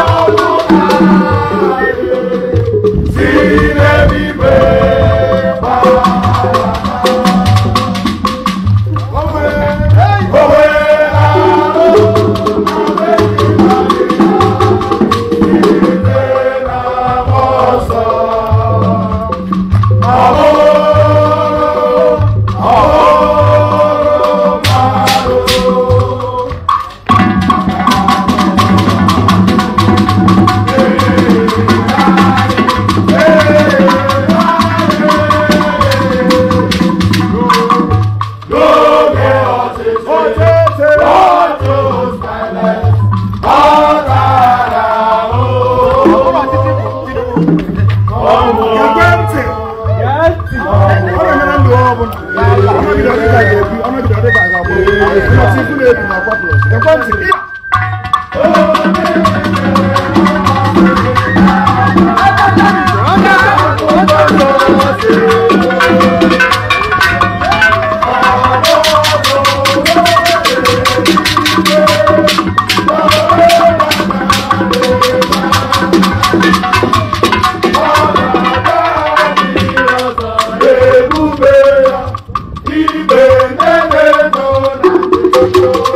Oh,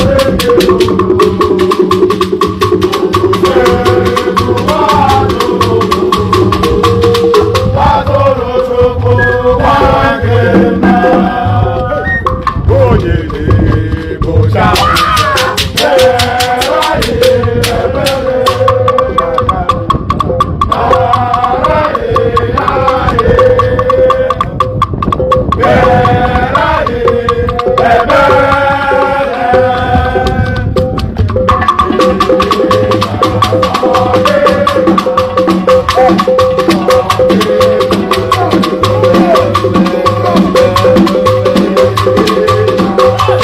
Thank you.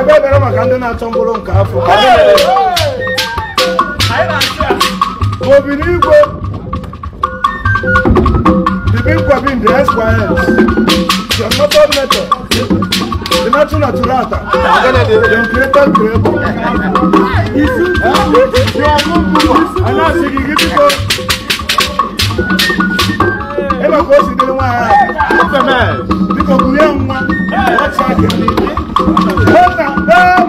ebe bere maka ndị na-achọ mkpụrụ nke afọ Obinigwe Ibinkwabi the Esquires the motor method the natu naturata the creator creator anasị gị gị biko ebe ka o si dịrị nwaanyị biko kurie nwa ọcha gị ¡Otra!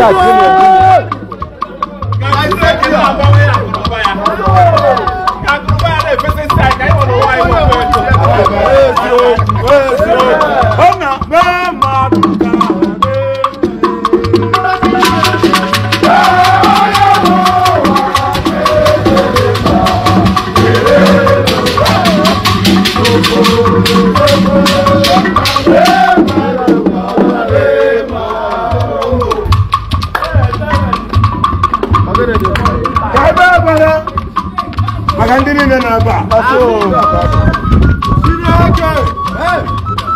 下去年。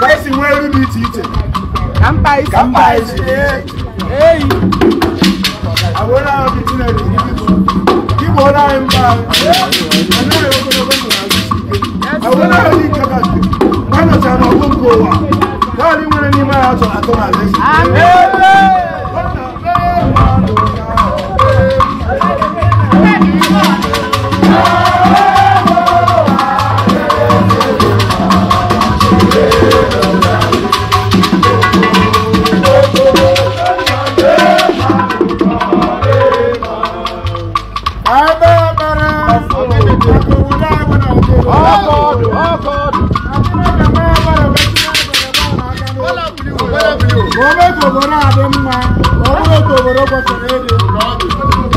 ka esi nwee elu dị iche iche ka mpa isi eyi agwụla ahụ dị chineke igbo ọrụ anyị mba anaghị ogologo ndụ agwụla ahụ dị ike kachi ma nọchara n'ọgụ Bravo.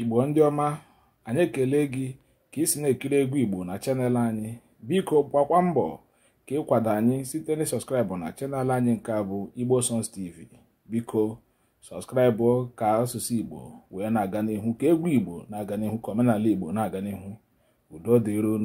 igbo ndị ọma anyị ekele gị ka ị na-ekiri egwu igbo na chanel anyị biko gbakwa mbọ ka ịkwado anyị site na sọskraịbụ na chanel anyị nke a bụ igbo songs tv biko sọskraịbụ ka asụsụ igbo wee na-aga n'ihu ka egwu igbo na-aga n'ihu ka omenala igbo na-aga n'ihu udo dịron